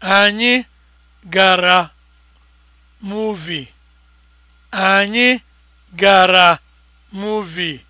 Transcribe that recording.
Anyị gara muuvi. Anyị gara muuvi.